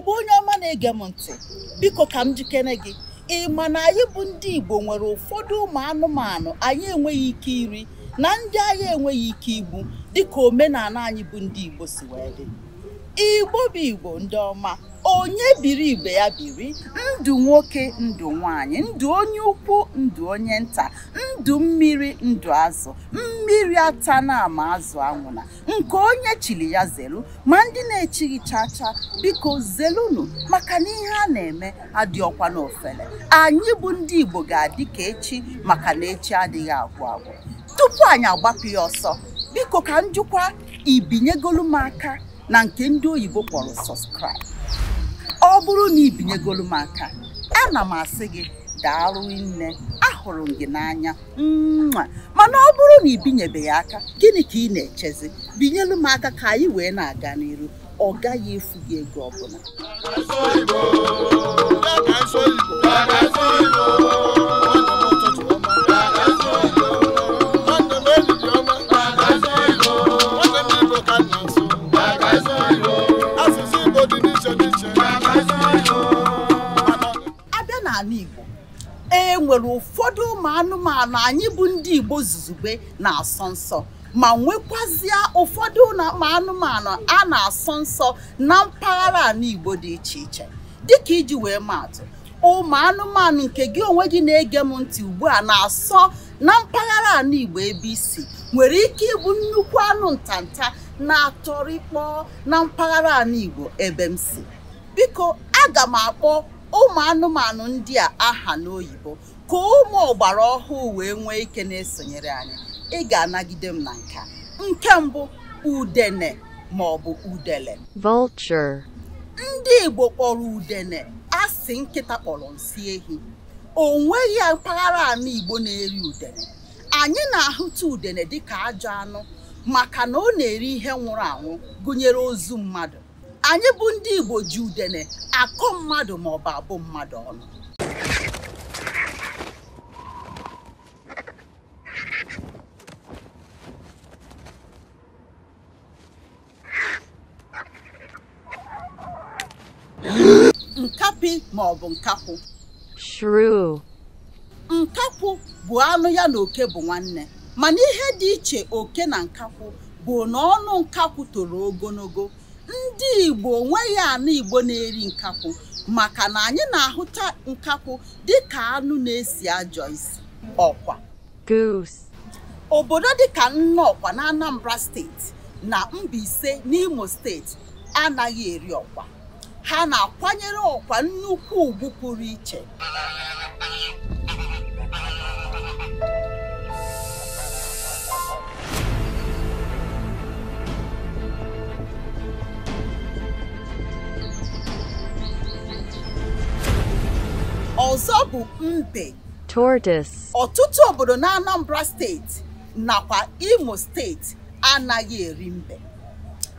igbo onye ọma na-ege m ntị biko ka m jikere gị ị ma na anyị bụ ndị igbo nwere ụfọdụ ụmụ anụmanụ anyị enweghị ike iri na ndị anyị enweghị ike igbu dịka omenala anyị bụ ndị igbo si wee dị igbo bụ igbo ndị ọma onye biri igbe ya biri ndụ nwoke ndụ nwanyị ndụ onye ukwu ndụ onye nta ndụ mmiri ndụ azụ mmiri ata na ama azụ anwụna nke onye chiri ya zelu ma ndị na-echighị chacha biko zelunu maka na ihe a na-eme adịọkwa n'ofele anyị bụ ndị igbo ga-adị ka echi maka na echi adịghị agwụ agwụ tupu anyị agbapụ ya ọsọ biko ka njụkwa ibinyegolu m aka na nke ndị oyibo kpọrọ subscribe ọ bụrụ na ibinyegolu m aka ana m asị gị daalụ nne ahụrụ m gị n'anya mma mana ọ bụrụ na ibinyebeghị aka gịnị ka ị na-echezi binyelu m aka ka anyị wee na-aga n'iru ọ gaghị efu gị ego ọbụla Igbo e nwere ụfọdụ ụmụ anụmanụ anyị bụ ndị Igbo zuzugbe na-asọ nsọ ma nwekwazịa ụfọdụ ụmụ anụmanụ a na-asọ nsọ na mpaghara ala Igbo dị iche iche dịka iji wee maatụ ụmụ anụmanụ nke gị onwe gị na-ege m ntị ugbu a na-asọ na mpaghara ala Igbo ebe isi nwere ike ịbụ nnukwu anụ ntanta na-atọrịkpọ na mpaghara ala Igbo ebe m si biko aga m akpọ ụmụ anụmanụ ndị a aha n'oyibo ka ụmụ ọgbara ọhụụ wee nwee ike na-esonyere anyị ị ga-anagide m na nka nke mbụ udene ma ọ bụ udele vulture ndị Igbo kpọrọ udene asị nkịta kpọrọ nsị ehi o nweghị mpaghara ala Igbo na-eri udene anyị na-ahụta udene dịka ajọ anụ maka na ọ na-eri ihe nwụrụ anwụ gụnyere ozu mmadụ anyị bụ ndị Igbo ji udene akọ mmadụ maọbụ abụ mmadụ ọnụ nkapi maọbụ nkakwụ nkakwụ bụ anụ ya na oke bụ nwanne mana ihe dị iche oke na nkakwụ bụ na ọnụ nkakwụ toro ogologo ndị igbo nweghị anụ igbo na-eri nkakwụ maka na anyị na-ahụta nkakwụ ka anụ na-esi ajọ isi ọkwa obodo dị dịka nnọkwa na Anambra steeti na Mbaise n'Imo steeti anaghị eri ọkwa ha na-akwanyere ọkwa nnukwu ugwu pụrụ iche bụ mbe tortoise ọtụtụ obodo na Anambra steeti nakwa Imo steeti anaghị eri mbe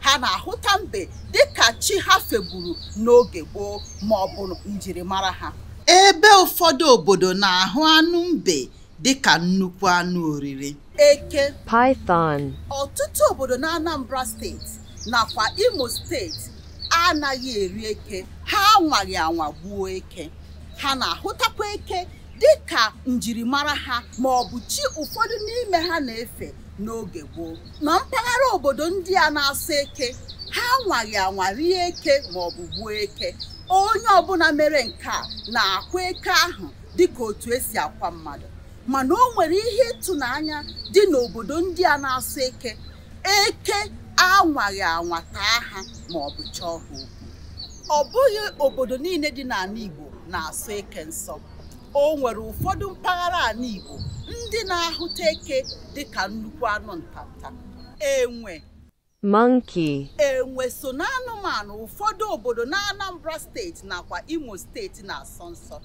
ha na-ahụta mbe dịka chi ha fegburu n'oge gboo ma ọ bụ njirimara ha ebe ụfọdụ obodo na-ahụ anụ mbe dịka nnukwu anụ oriri eke python ọtụtụ obodo na Anambra steeti nakwa Imo steeti anaghị eri eke ha anwaghị anwa gbuo eke ha na-ahụtakwa eke dị ka njirimara ha ma ọ bụ chi ụfọdụ n'ime ha na-efe n'oge gboo na mpaghara obodo ndị a na-asa eke ha anwaghị rie eke ma ọ bụ gbuo eke onye ọbụla mere nke a na-akwa eke ahụ dịka otu esi akwa mmadụ mana o nwere ihe ịtụnanya dị n'obodo ndị a na-asa eke eke anwaghị anwa taa ha ma ọ bụ chọọ ha okwu ọ bụghị obodo niile dị n'ala Igbo na-asụ eke nsọ o nwere ụfọdụ mpaghara ala Igbo ndị na-ahụta eke dịka nnukwu anụ ntanta enwe monkey enwe so na anụmanụ ụfọdụ obodo na Anambra steeti nakwa Imo steeti na-asọ nsọ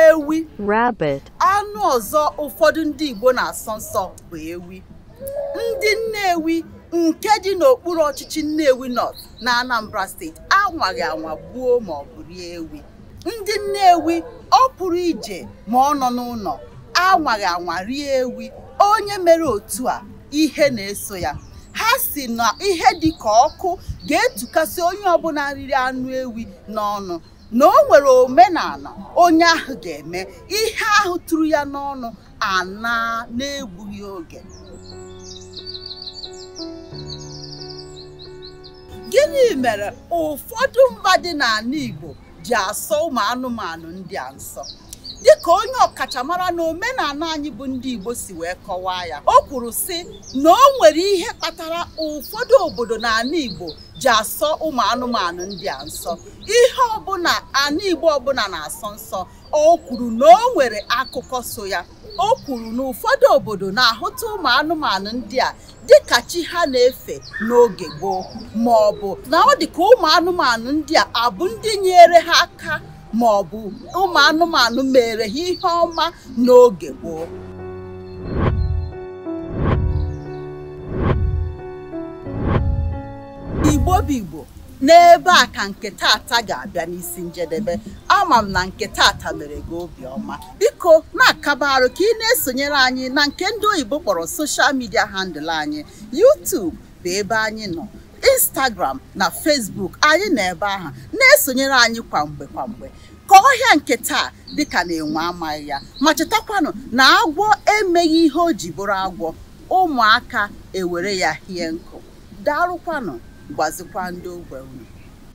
ewi rabbit anụ ọzọ ụfọdụ ndị Igbo na-asọ nsọ bụ ewi ndị Nnewi nke dị n'okpuru ọchịchị Nnewi North na Anambra steeti anwaghị anwa gbuo ma rie ewi ndị Nnewi ọ pụrụ ije ma ọ nọ n'ụlọ anwaghị anwa rie ewi onye mere otu a ihe na-eso ya ha si na ihe dị ka ọkụ ga-etukasị onye ọbụla riri anụ ewi n'ọnụ na o nwere omenala onye ahụ ga-eme ihe ahụ tụrụ ya n'ọnụ ana n'egbughị oge gịnị mere ụfọdụ mba dị n'ala Igbo ji asọ ụmụ anụmanụ ndị a nsọ dịka onye ọkachamara na omenala anyị bụ ndị Igbo si wee kọwaa ya o kwuru sị na o nwere ihe kpatara ụfọdụ obodo na ala Igbo ji asọ ụmụ anụmanụ ndị a nsọ ihe ọbụla ala Igbo ọbụla na-asọ nsọ o kwuru na o nwere akụkọ so ya o kwuru na ụfọdụ obodo na-ahụta ụmụ anụmanụ ndị a dịka chi ha na-efe n'oge gboo ma ọ bụ na ọ dị ka ụmụ anụmanụ ndị a abụ ndị nyere ha aka ma ọ bụ ụmụ anụmanụ mere ha ihe ọma n'oge gboo igbo bụ igbo n'ebe a ka nke tata ga-abịa n'isi njedebe ama m na nke tata mere gị obiọma biko na-akaba arụ ka ị na-esonyere anyị na nke ndị oyibo kpọrọ soshal midia handụl anyị YouTube bụ ebe anyị nọ instagram na facebook anyị na ebe ahụ na-esonyere anyị kwamgbe kwamgbe ka ọhịa nke taa dịka na-enwe amaghị ya ma chetakwanụ na agwọ emeghị ihe o ji bụrụ agwọ ụmụaka ewere ya hie nkụ daalụkwanụ gwazikwa ndị ogbe unu